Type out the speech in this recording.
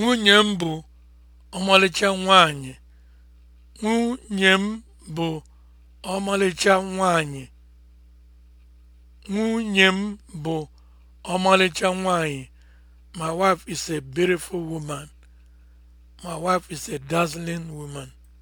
Nwunye m bụ ọmalịcha nwanyị Nwunye m My wife is a beautiful woman. My wife is a dazzling woman.